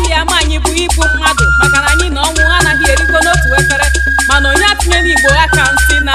ibu ya ma anyị bụ ibu mmadụ maka na anyị na ọnwụ anaghị erikọ n'otu efere mana onye atụnyela igbo aka ntị na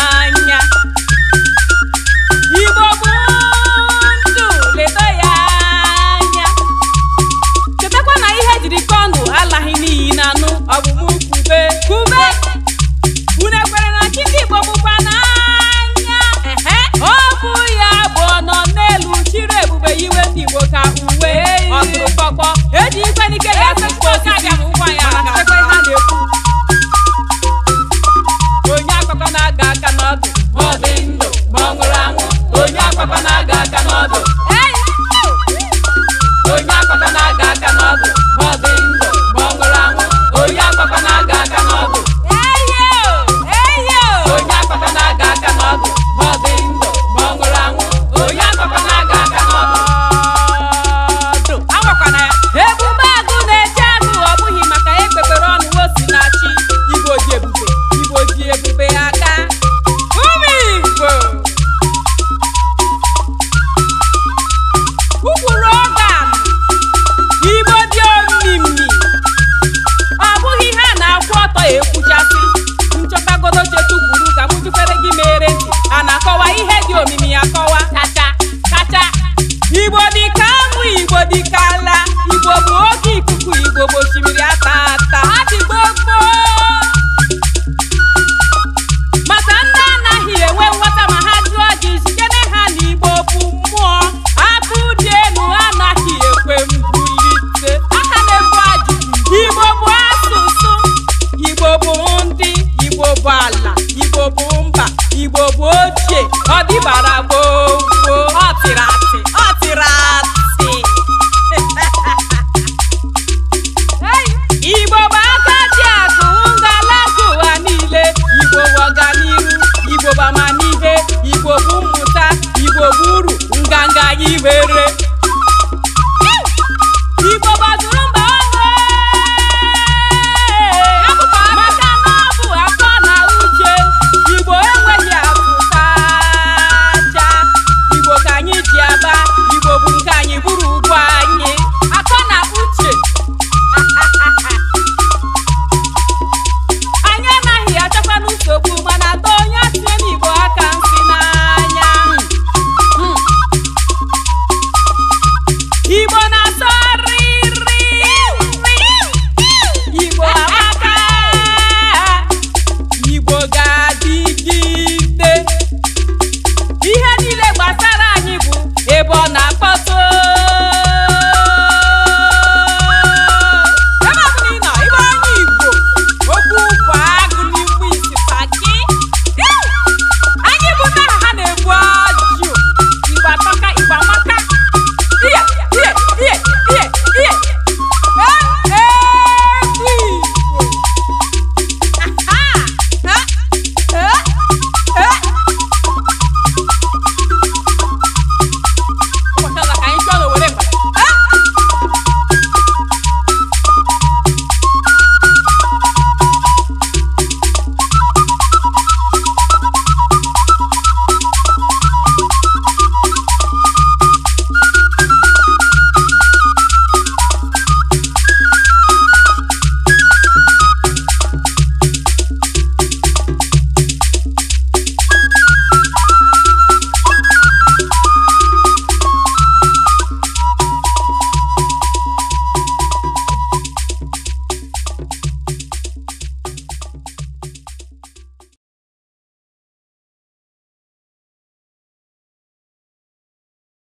不不看，也不如管。